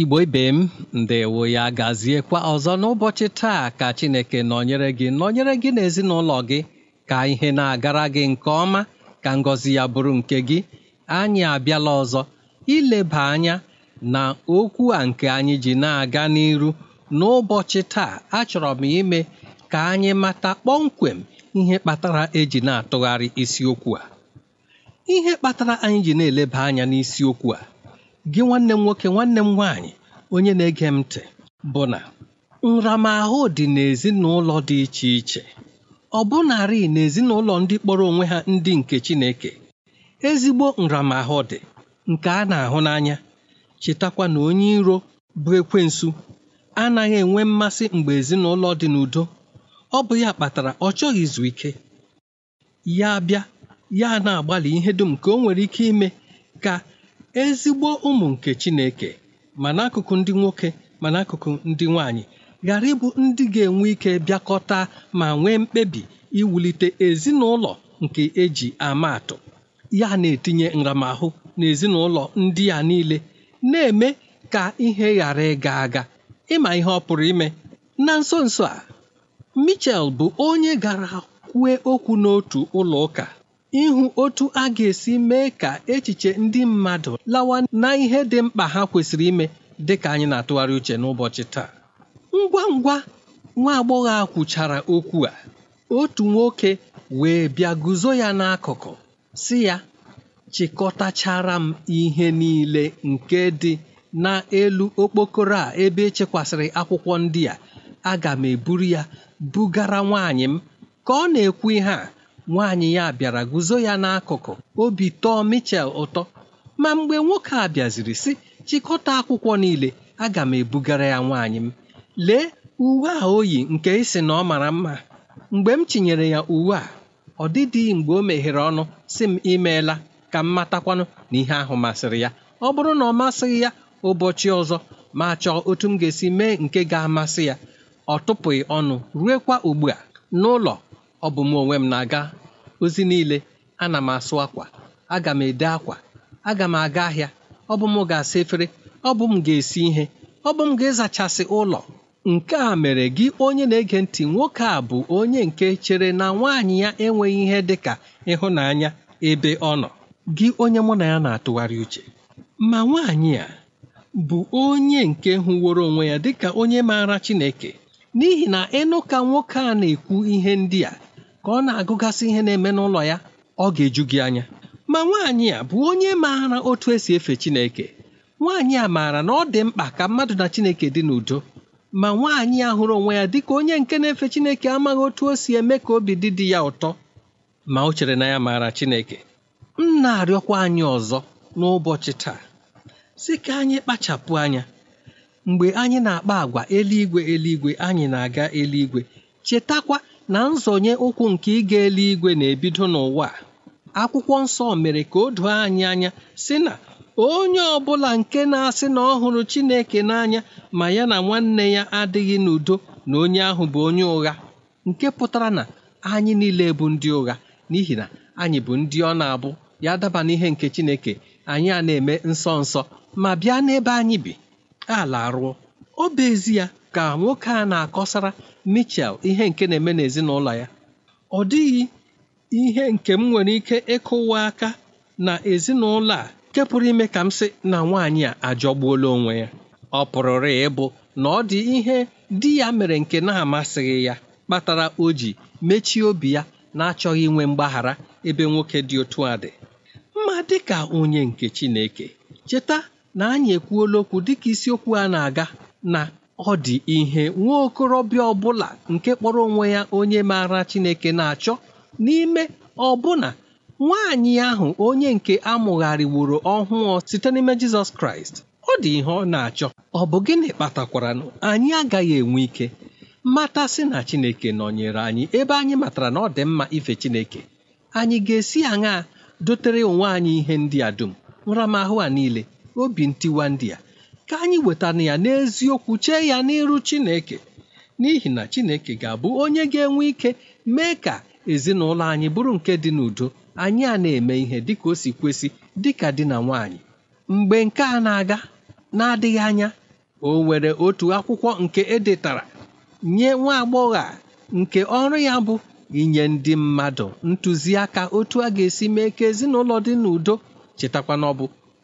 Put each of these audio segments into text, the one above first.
igbo ibe m ndewo ya gaziekwa ọzọ n'ụbọchị taa ka chineke nọnyere gị nọnyere gị na ezinụlọ gị ka ihe na-agara gị nke ọma ka ngọzi ya bụrụ nke gị anyị abịala ọzọ ileba anya na okwu a nke anyị ji na-aga n'iru n'ụbọchị taa achọrọ m ime ka anyị mata kpọmkwem ihe kpatara eji na-atụgharị isiokwu a ihe kpatara anyị ji na-eleba anya n'isiokwu a gị nwanne m nwoke nwanne m nwaanyị onye na-ege m ntị bụ na nramahụ dị n'ezinụlọ dị iche iche ọ bụnarị n'ezinụlọ ndị kpọrọ onwe ha ndị nke Chineke ezigbo nramahụ dị nke a na-ahụ n'anya chetakwa na onye iro bụ ekwensu anaghị enwe mmasị mgbe ezinụlọ dị n'udo ọ bụ ya kpatara ọ chọghị izu ike ya bịa ya na-agbalị ihe dum ka o nwere ike ime ka ezigbo ụmụ nke chineke ma n'akụkụ ndị nwoke ma n'akụkụ ndị nwanyị ghara ịbụ ndị ga-enwe ike bịakọta ma nwee mkpebi iwulite ezinụlọ nke eji ama atụ ya na-etinye nramahụ n'ezinụlọ ndị a niile na-eme ka ihe ghara ịga aga ịma ihe ọ pụrụ ime na nso nso a Michel bụ onye gara kwue okwu n'otu ụlọ ụka ịhụ otu a ga-esi mee ka echiche ndị mmadụ lawa na ihe dị mkpa ha kwesịrị ime dị ka anyị na-atụgharị uche n'ụbọchị taa ngwa ngwa nwa agbọghọ a kwuchara okwu a otu nwoke wee bịa guzo ya n'akụkụ si ya chịkọtachara m ihe niile nke dị n'elu okpokoro a ebe echekwasịrị akwụkwọ ndị a aga m eburu ya bugara nwaanyị m ka ọ na-ekwu ihe a nwaanyị ya bịara guzo ya n'akụkụ obi tọọ Michel ụtọ ma mgbe nwoke a bịaziri sị chịkọta akwụkwọ niile aga m ebugara ya nwaanyị m lee uwe a o yi nke isi na ọ mara mma mgbe m chinyere ya uwe a ọ dịdị mgbe o meghere ọnụ si m imeela ka m matakwanụ na ihe ahụ masịrị ya ọ bụrụ na ọ masịghị ya ụbọchị ọzọ ma chọọ otu m ga-esi mee nke ga-amasị ya ọ tụpụghị ọnụ ruekwa ugbu a n'ụlọ ọ bụ m onwe m na-aga ozi niile ana m asụ akwa aga m ede akwa aga m aga ahịa ọ bụ m ga-asa efere ọ bụ m ga-esi ihe ọ bụ m ga-ezachasị ụlọ nke a mere gị onye na-ege ntị nwoke a bụ onye nke chere na nwaanyị ya enweghị ihe dị ka ịhụnanya ebe ọ nọ gị onye mụ na ya na-atụgharị uche ma nwaanyị a bụ onye nke hụworo onwe ya dịka onye maara Chineke n'ihi na ịnụ ka nwoke a na-ekwu ihe ndị a ka ọ na-agụgasị ihe na-eme n'ụlọ ya ọ ga-eju gị anya ma nwaanyị a bụ onye maara otu esi efe Chineke nwaanyị a maara na ọ dị mkpa ka mmadụ na Chineke dị n'udo ma nwaanyị a hụrụ onwe ya dịka onye nke na-efe Chineke amaghị otu o si eme ka obi dị di ya ụtọ ma o chere na ya maara Chineke m na-arịọkwa anyị ọzọ n'ụbọchị taa sị ka anyị kpachapụ anya mgbe anyị na-akpa agwa eluigwe eluigwe anyị na-aga eluigwe chetakwa na nzọnye ụkwụ nke ịga eluigwe na-ebido n'ụwa akwụkwọ nsọ mere ka o doo anyị anya si na onye ọbụla nke na-asị na ọ hụrụ Chineke n'anya ma ya na nwanne ya adịghị n'udo na onye ahụ bụ onye ụgha nke pụtara na anyị niile bụ ndị ụgha n'ihi na anyị bụ ndị ọ na-abụ ya daba n'ihe nke Chineke anyị a na-eme nsọ nsọ ma bịa n'ebe anyị bi ala arụọ ọ bụ ezi ya ka nwoke a na-akọsara Mitchell ihe nke na-eme n'ezinụlọ ya ọ dịghị ihe nke m nwere ike ịkụwa aka na ezinụlọ a nke pụrụ ime ka m sị na nwaanyị a ajọgbuola onwe ya ọ pụrụrụ ịbụ na ọ dị ihe di ya mere nke na-amasịghị ya kpatara o ji mechie obi ya na-achọghị inwe mgbaghara ebe nwoke dị otu a dị mma dịka onye nke Chineke cheta na anyị ekwuola okwu dịka isiokwu a na-aga na ọ dị ihe nwa okorobịa ọbụla nke kpọrọ onwe ya onye maara Chineke na-achọ n'ime ọbụna nwaanyị ahụ onye nke amụgharịworo ọhụụ site n'ime Jizọs Kraịst ọ dị ihe ọ na-achọ ọ bụ gịnị kpatakwara anyị agaghị enwe ike matasị na Chineke nọnyere anyị ebe anyị matara na ọ dị mma ife Chineke anyị ga-esi aṅaa dotere onwe anyị ihe ndị a dum nramahụ a niile obi ntiwa ndị a ka anyị wetana ya n'eziokwu chee ya n'iru Chineke n'ihi na Chineke ga-abụ onye ga-enwe ike mee ka ezinụlọ anyị bụrụ nke dị n'udo anyị a na-eme ihe dịka o si kwesị ka di na nwanyị mgbe nke a na-aga na-adịghị anya o nwere otu akwụkwọ nke edetara nye nwa agbọghọ a nke ọrụ ya bụ inye ndị mmadụ ntụziaka otu a ga-esi mee ka ezinụlọ dị n'udo chetakwa na ọ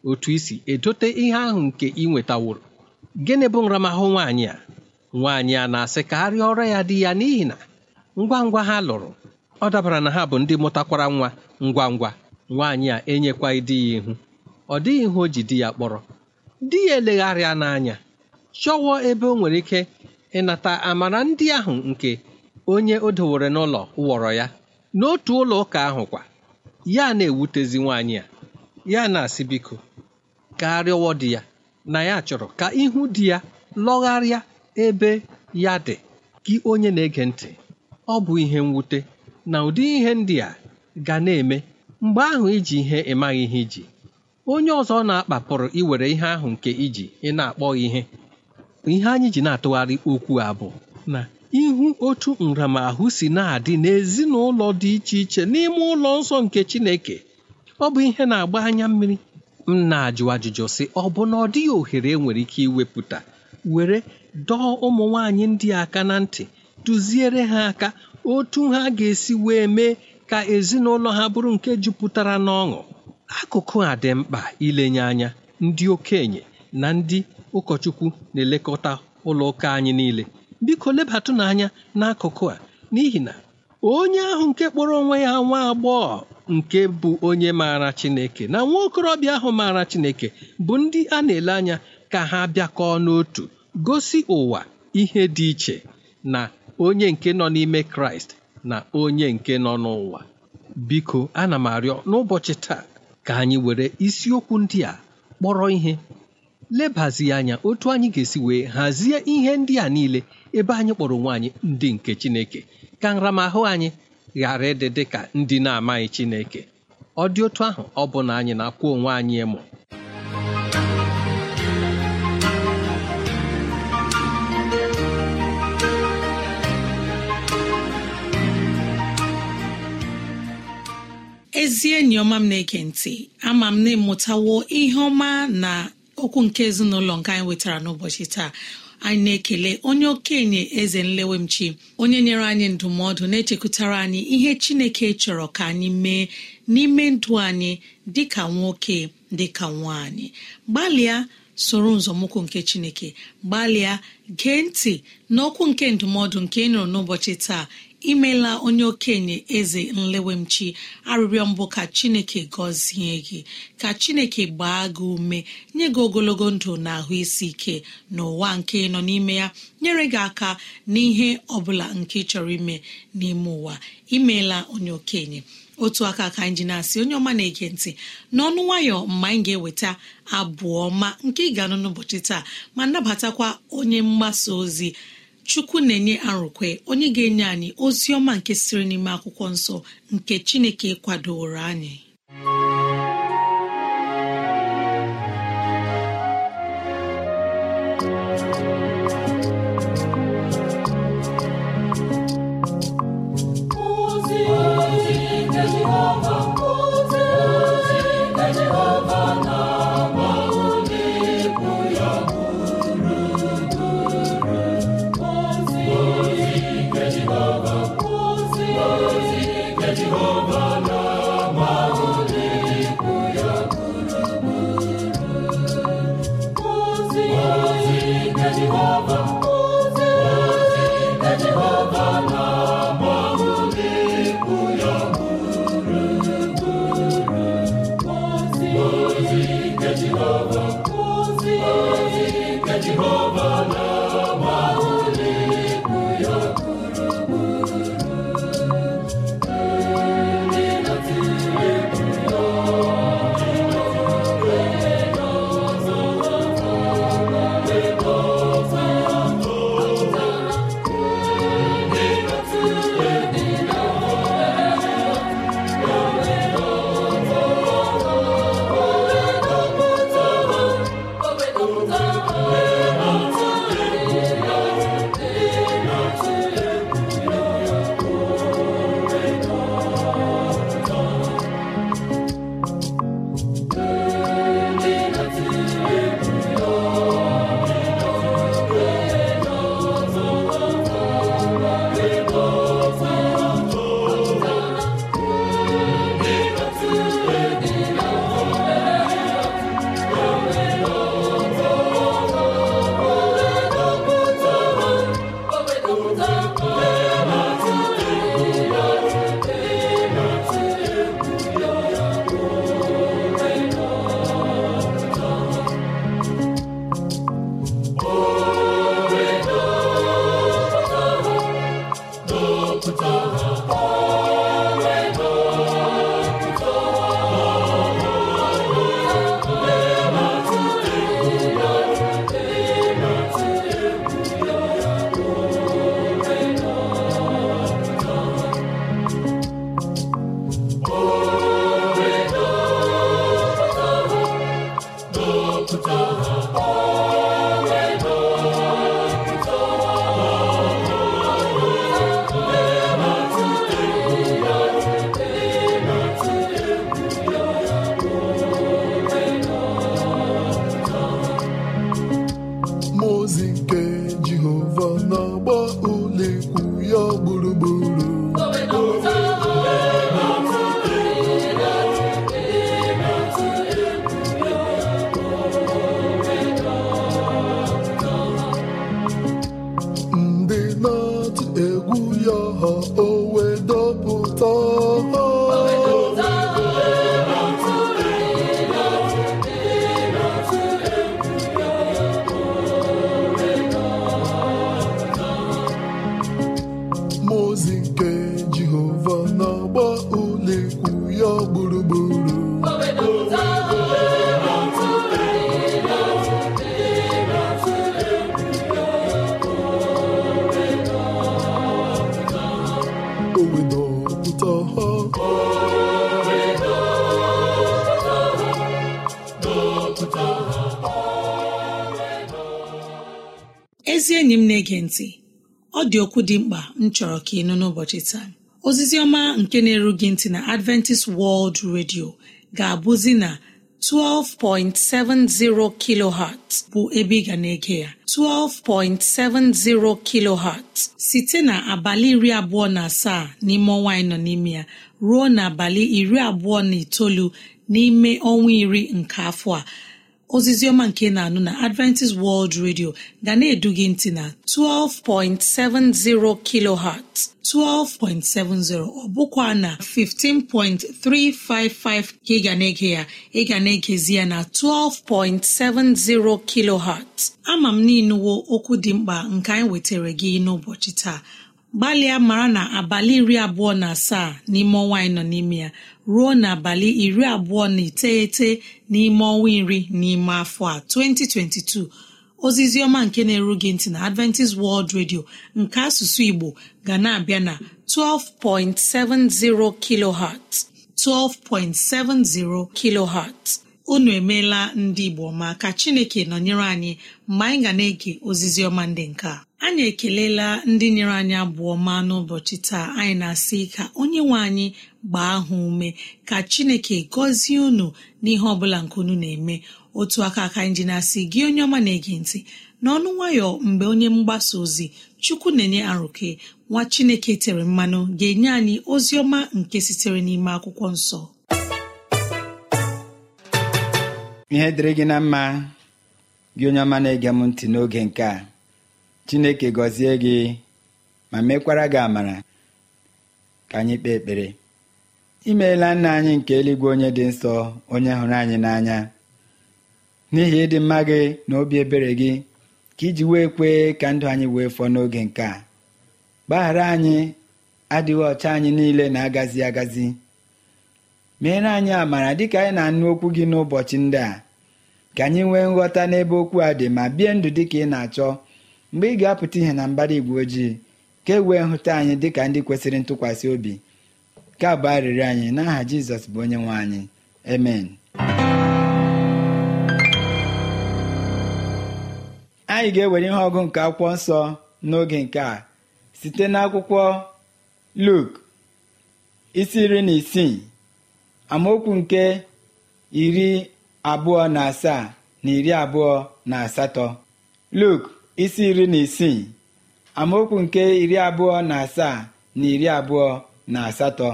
otu isi edote ihe ahụ nke ị nwetaworo gịnị bụ nramahụ nwaanyị a nwaanyị a na-asị ka arịa ọrụ ya dị ya n'ihi na ngwa ngwa ha lụrụ ọ dabara na ha bụ ndị mụtakwara nwa ngwa ngwa nwaanyị a enyekwa dị ya ihu ọ dịghị ihe o ji di ya kpọrọ di ya elegharịa n'anya chọwọ ebe o nwere ike ịnata amara ndị ahụ nke onye o dowere n'ụlọ wọrọ ya n'otu ụlọ ụka ahụ kwa ya na-ewutezi nwaanyị a ya na-asị biko gaa rịọwa di ya na ya chọrọ ka ihu di ya lọgharịa ebe ya dị gị onye na-ege ntị ọ bụ ihe mwute na ụdị ihe ndị a ga na-eme mgbe ahụ iji ihe ịmaghị ihe iji onye ọzọ na-akpapụrụ iwere ihe ahụ nke iji ị na-akpọ ihe ihe anyị ji na-atụgharị okwu a bụ na ihu otu nramahụ si na-adị n'ezinụlọ dị iche iche n'ime ụlọ nsọ nke Chineke ọ bụ ihe na-agba anya mmiri m na-ajụ ajụjụ sị ọ bụ na ọ dịghị ohere enwere ike iwepụta were dọọ ụmụ nwaanyị ndị aka na ntị duziere ha aka otu ha ga-esi wee mee ka ezinụlọ ha bụrụ nke jupụtara n'ọṅụ akụkụ a dị mkpa ilenye anya ndị okenye na ndị ụkọchukwu na-elekọta ụlọ ụka anyị niile biko lebatụ n'anya n'akụkụ a n'ihi na onye ahụ nke kpọrọ onwe ya nwa agbọghọ nke bụ onye maara Chineke na nwa okorobịa ahụ maara Chineke bụ ndị a na-ele anya ka ha bịakọọ n'otu gosi ụwa ihe dị iche na onye nke nọ n'ime Kraịst na onye nke nọ n'ụwa biko ana m arịọ n'ụbọchị taa ka anyị were isiokwu ndị a kpọrọ ihe lebazi anya otu anyị ga-esi wee hazie ihe ndị a niile ebe anyị kpọrọ onwe anyị ndị nke Chineke ka nramahụ anyị ghara ịdị dị ka ndị na-amaghị Chineke ọ dị otu ahụ ọ bụ na anyị na-akwụ onwe anyị ịmụ ezi enyi ọma m na-ege ntị ama m na ịmụtawo ihe ọma na okwu nke ezinụlọ nke anyị nwetara n'ụbọchị taa anyị na-ekele onye okenye eze nlewemchi onye nyere anyị ndụmọdụ na-echekwutara anyị ihe chineke chọrọ ka anyị mee n'ime ndụ anyị dịka nwoke dịka nwaanyị gbalịa soro nzọmụkwụ nke chineke gbalịa gee ntị n'okwu nke ndụmọdụ nke ị nụrụ n'ụbọchị taa imela onye okenye eze nlewemchi arịrịọ mbụ ka chineke gọzie gị ka chineke gbaa gị ume nye gị ogologo ndụ na ahụ isi ike n'ụwa nke nọ n'ime ya nyere gị aka n'ihe ọ bụla nke chọrọ ime n'ime ụwa imeela onye okenye otu aka ka anyị ji na-asị onye ọma na-ege ntị n'ọnụ nwayọ mgbe anyị ga-eweta abụ ọma nke ị ga-anụ n'ụbọchị taa ma nabatakwa onye mgbasa ozi chukwu na-enye arụkwe onye ga-enye anyị ozi ọma nke siri n'ime akwụkwọ nsọ nke chineke kwadoro anyị Jehovah. na ọ dị okwu dị mkpa m chọrọ ka ị nụ n'ụbọchị taa ozizi ọma nke na-eru ntị na adventist world radio ga-abụzi na 12.70 kilohertz bụ ebe ị ga na-ege ya 12.70 kilohertz site na abalị iri abụọ na asaa n'ime ọnwa anyị nọ n'ime ya ruo na abalị iri abụọ na itoolu n'ime ọnwa iri nke afọ a ozizi ọma nke na-anụ na adventist world radio ga na-edu gị ntị na 12.70 kilohertz 12.70 ọ bụkwa na 15.355 ka ị ga na-ege ya ị ga na-egezi ya na 12.70 kilohertz ama m n'inuwo okwu dị mkpa nke anyị wetara gị n'ụbọchị taa gbalịa mara na abalị iri abụọ na asaa n'ime ọnwa anyị nọ n'ime ya ruo n'abalị iri abụọ na iteghete n'ime ọnwa iri n'ime afọ a 2022 ozizi ọma nke na-eru gị ntị na Adventist World Radio nke asụsụ Igbo ga na-abịa na 12.70 kilohertz 12.70 kilohertz unu emeela ndị Igbo ma ka Chineke nọnyere anyị mgbe anyị ga na-ege ozizi ọma ndị nke a anyị ekelela ndị nyere anyị abụọ ma n'ụbọchị taa anyị na-asị ka onye nwe anyị gbaa ahụ ume ka chineke gọzie unu n'ihe ọbụla nke unu na-eme otu aka aka anyị ji na-asị gị onye ọma na-ege ntị n'ọnụ nwayọ mgbe onye mgbasa ozi chukwu na-enye arụke nwa chineke tere mmanụ ga-enye anyị ozi ọma nke sitere n'ime akwụkwọ nsọ ihe dịrị gị na mma gị onye ọma na-ege m ntị n'oge nke a chineke gọzie gị ma mekwara gị amara ka anyị kpee ekpere imeela nna anyị nke eluigwe onye dị nsọ onye hụrụ anyị n'anya n'ihi ịdị mma gị na obi ebere gị ka iji wee kwee ka ndụ anyị wee fọọ n'oge nke a gbaghara anyị adịghị ọcha anyị niile na-agazi agazi meere anyị amara dịka anyị na-anụ okwu gị n'ụbọchị ndị a ka anyị nwee nghọta n'ebe okwu a dị ma bie ndụ dị ka ị na-achọ mgbe ị ga-apụta ihe na mbara igwe ojii ka e wee hụta anyị dịka ndị kwesịrị ntụkwasị obi ka bụ arịrị anyị n'aha Jizọs bụ onye nwe anyị amen anyị ga-ewere ihe ọgụ nke akwụkwọ nsọ n'oge nke a site n'akwụkwọ Luk isi iri na isii amaokwu nke iri abụọ na asaa na iri abụọ na asatọ Luk isi iri na isii amaokwu nke iri abụọ na asaa na iri abụọ na asatọ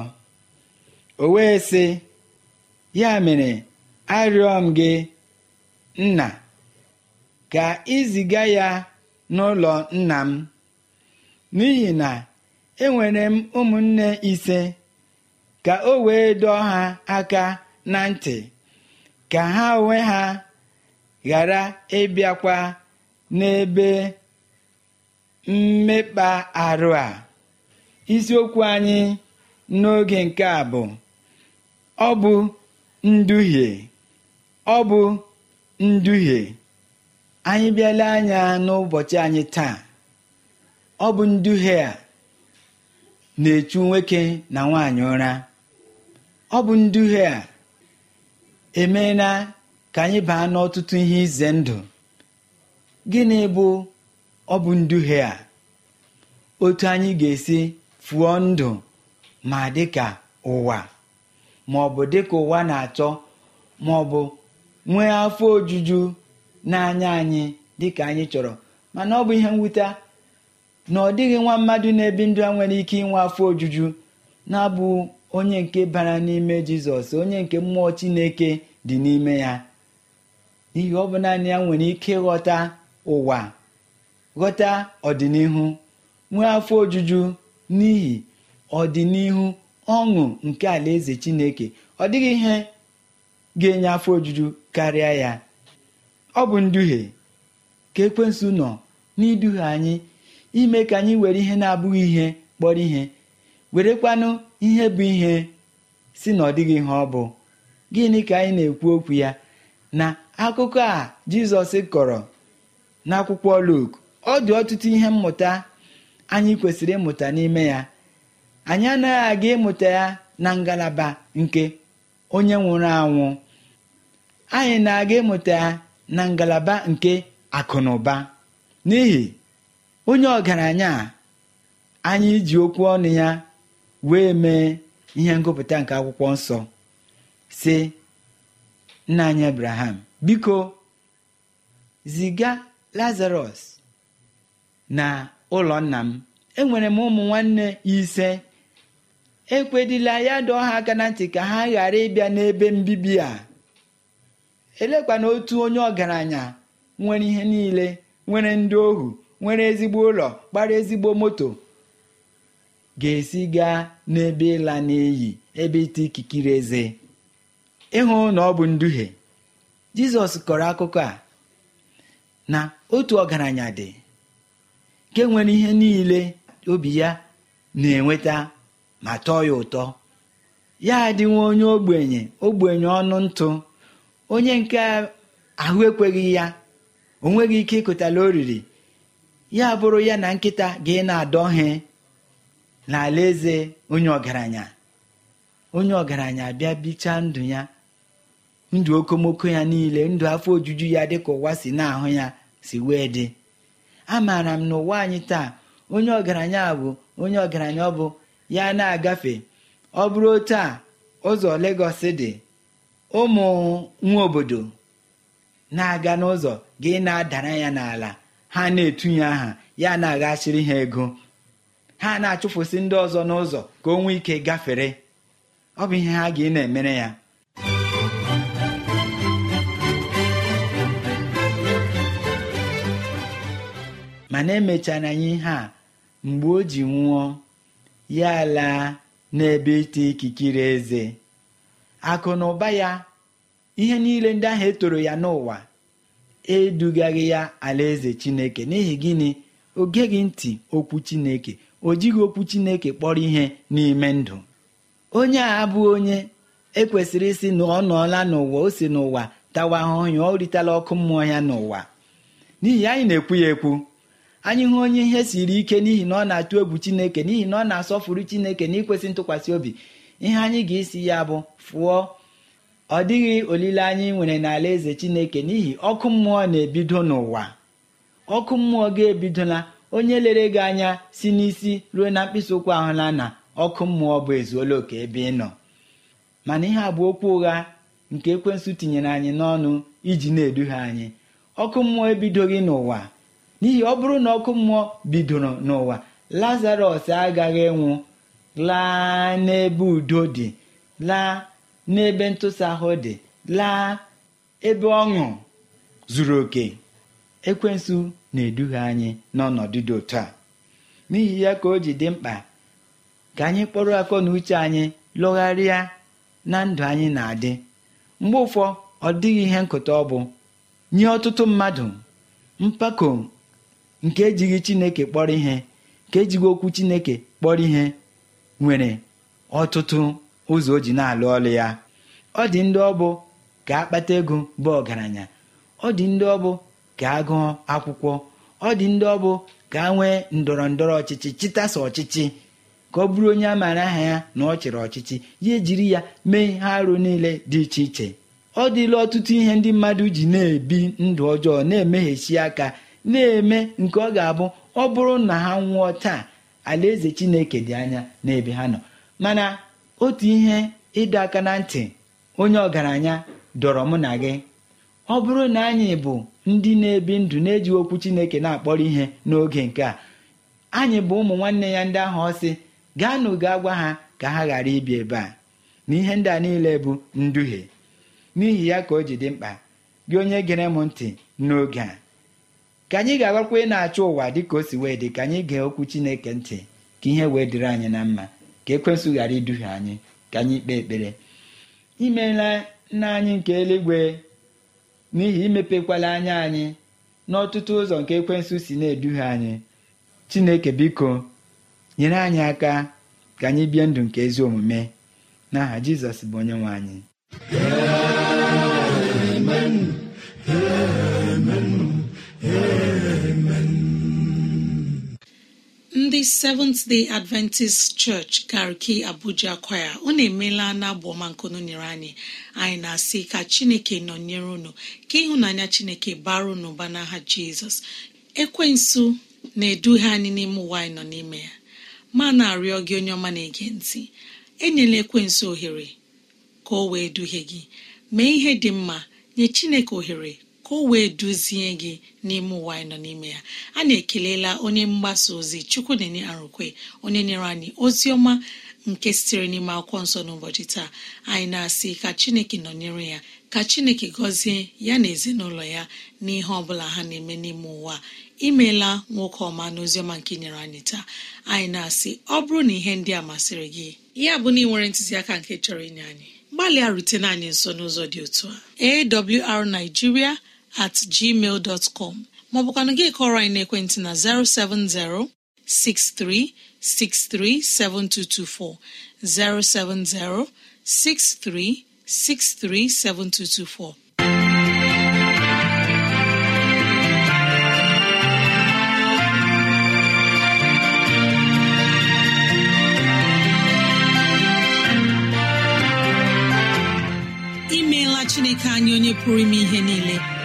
o wee sị ya mere arịọ m gị nna ka iziga ya n'ụlọ nna m n'ihi na enwere m ụmụnne ise ka o wee dọọ ha aka na ntị ka ha onwe ha ghara ịbịakwa n'ebe mmekpa arụ a isiokwu anyị n'oge nke a bụ ọ bụ nduhie ọ bụ nduhie anyị bịala anya n'ụbọchị anyị taa ọ bụ nduhie a na-echu nwoke na nwaanyị ụra ọ bụ nduhie a emeela ka anyị baa n'ọtụtụ ihe ize ndụ gịnị bụ ọ bụ nduhie a otu anyị ga-esi fụọ ndụ ma dịka ụwa ma ọ bụ dịka ụwa na-achọ ma ọ bụ nwee afọ ojuju n'anya anyị dịka anyị chọrọ mana ọ bụ ihe mwute na ọ dịghị nwa mmadụ na-ebi ndụ a nwere ike inwe afọ ojuju na-abụ onye nke bara n'ime jizọs onye nke mmụọ chineke dị n'ime ya n'ihi ọ bụ naanị ya nwere ike ịghọta ụwa ghọta ọdịnihu nwee afọ ojuju n'ihi ọdịnihu ọṅụ nke alaeze chineke ọ dịghị ihe ga-enye afọ ojuju karịa ya ọ bụ nduhie ka ekwensu nọ n'iduhie anyị ime ka anyị were ihe na-abụghị ihe kpọrọ ihe were werekwanụ ihe bụ ihe si na ọ dịghị ihe ọ bụ gịnị ka anyị na-ekwu okwu ya na akụkọ a jizọs kọrọ n'akwụkwọ Luk ọ dị ọtụtụ ihe mmụta anyị kwesịrị ịmụta n'ime ya anyị anaghị aga ịmụta ya na ngalaba nke onye nwụrụ anwụ anyị na-aga ịmụta ya na ngalaba nke akụ na ụba n'ihi onye ọgaranya anyị ji okwu ọnụ ya wee mee ihe ngụpụta nke akwụkwọ nsọ si nna anyị Abraham biko ziga lazarus na ụlọ nna m enwere m ụmụ nwanne ise ekwedịla ya dị ọha aka na ntị ka ha ghara ịbịa n'ebe mbibi a elekwa na otu onye ọgaranya nwere ihe niile nwere ndị ohu nwere ezigbo ụlọ kpara ezigbo moto ga-esi gaa n'ebe ịla n'iyi ebe ite ikikiri eze ịhụ na ọ bụ nduhie jizọs kọrọ akụkọ a na otu ọgaranya dị nke nwere ihe niile obi ya na-enweta ma tọọ ya ụtọ ya nwa onye ogbenye ogbenye ọnụ ntụ onye nke ahụ ekweghị ya o nweghị ike ịkụtala oriri ya bụrụ ya na nkịta ga na adọghị n'ala eze onye ọgaranya onye ọgaranya bịa bichaa ndụ ya ndụ okomoko ya niile ndụ afọ ojuju ya dịka ụwa si na-ahụ ya si wee dị amaara m na ụwa anyị taa onye ọgaranya bụ onye ọgaranya ọ bụ ya na-agafe ọ bụrụ otu a ụzọ Legọs dị ụmụ nwa obodo na-aga n'ụzọ gị na-adara ya n'ala ha na-etunye aha ya na-aghachiri ha ego ha na-achụfụsị ndị ọzọ n'ụzọ ka o nwee ike gafere ọ bụ ihe ha ga na-emere ya na emechara anyị ihe a mgbe o ji nwụọ ya laa n'ebe ite ikikere eze akụ na ụba ya ihe niile ndị ahụ etoro ya n'ụwa edugaghị ya alaeze chineke n'ihi gịnị o geghị ntị okwu chineke o jighị okwu chineke kpọrọ ihe n'ime ndụ onye a abụghị onye ekwesịrị ịsị na ọ nọọla n'ụwa o si n'ụwa tawa ahụhụ ya ọ ọkụ mmụọ ya n'ụwa n'ihi anyị na-ekwu ya ekwu anyị hụ onye ihe siri ike n'ihi na ọ na-atụ egwu chineke n'ihi na ọ na-asọfuru chineke na ikwesị ntụkwasị obi ihe anyị ga-esi ya bụ fụọ ọ dịghị olileanya ị nwere n'ala eze chineke n'ihi ọkụ mmụọ na-ebido n'ụwa ọkụ mmụọ ga-ebidola onye lere gị anya si n'isi ruo na mkpịsị ụkwụ ahụla na ọkụ mmụọ bụ ezuola oke ebe ị nọ mana ihe a bụ okwu ụgha nke ekwensụ tinyere anyị n'ọnụ iji na-eduhie anyị ọkụ mmụọ ebidoghị n'ụwa n'ihi ọ bụrụ na ọkụ mmụọ bidoro n'ụwa lazarọs agaghị ịnwụ laa n'ebe udo dị laa n'ebe ntụsa ahụ dị laa ebe ọṅụ zuru oke ekwensu na-eduhie anyị n'ọnọdụ dị otu a n'ihi ya ka o ji dị mkpa ka anyị kpọrọ akọ na uche anyị lụgharịa na ndụ anyị na-adị mgbe ụfọ ọ dịghị ihe nkụta ọ bụ nye ọtụtụ mmadụ mpako nke ejighị chineke kpọrọ ihe nke ejighị okwu chineke kpọrọ ihe nwere ọtụtụ ụzọ o ji na-alụ ọlụ ya ọ dị ndị ọbụ ka akpata ego bụ ọgaranya ọ dị ndị ọbụ ka agụọ akwụkwọ ọ dị ndị ọbụ ka a nwee ndọrọ ndọrọ ọchịchị chịtasa ọchịchị ka ọ bụrụ onye a maara aha ya na ọ chịrị ọchịchị ya ejiri ya mee ihe arụ niile dị iche iche ọ dịla ọtụtụ ihe ndị mmadụ ji na-ebi ndụ ọjọọ na-emeghechi aka na-eme nke ọ ga-abụ ọ bụrụ na ha nwụọ taa alaeze chineke dị anya n'ebe ha nọ mana otu ihe ịdọ aka na ntị onye ọgaranya dọrọ mụ na gị ọ bụrụ na anyị bụ ndị na-ebi ndụ na-eji okwu chineke na-akpọrọ ihe n'oge nke a anyị bụ ụmụ nwanne ya ndị ahụ ọsị gaanụ gaa gwa ha ka ha ghara ibi ebe a na ihe ndị a niile bụ nduhie n'ihi ya ka o ji dị mkpa gị onye gere m ntị n'oge a ka anyị ga agwakwa ị na-achọ ụwa dị ka o si wee dị ka anyị gee okwu Chineke ntị ka ihe wee dịrị anyị na mma ka ekwensụ ghara iduhie anyị ka anyị kpee ekpere imela nna anyị nke eluigwe n'ihi imepekwala anya anyị n'ọtụtụ ụzọ nke ekwensụ si na-eduhie anyị Chineke biko nyere anyị aka ka anyị bie ndụ nke ezi omume n'aha Jizọs bụ onye nwe anyị ndị seventh day adventist church gariki abuja kwaya unu emeela na agbọma nkunu nyere anyị anyị na-asị ka chineke nọnyere unu ka ịhụnanya chineke bara ụnụ ụba n'aha jizọs ekwensu na-eduhie anyị n'ime ụwa anyị nọ n'ime ya ma na-arịọ gị onye ọma na-ege ntị enyela ekwensu ohere ka o wee duhie gị mee ihe dị mma nye chineke ohere ka o wee duzie gị n'ime ụwa anyị nọ n'ime ya na ekelela onye mgbasa ozi chukwu na-enye arụkwe onye nyere anyị ozi ọma nke sitere n'ime akwụkwọ nsọ n'ụbọchị taa anyị na-asị ka chineke nọnyere ya ka chineke gọzie ya na ezinụlọ ya n'ihe ihe ọbụla ha na-eme n'ime ụwa imeela nwoke ọma n'oziọma nke nyere anyị taa anyị na-asị ọ bụrụ na ihe ndị a masịrị gị ya bụ na ị nwere ntụziaka nke chọrọ inye anyị gbalịa rutena anyị nso n'ụzọ dị otu a awrnigeria at gmail dọtcọm maọbụkwanụ gị kọrọ anyị n'ekwentị na 6363 7224. imeela chineke anyị onye pụrụ ime ihe niile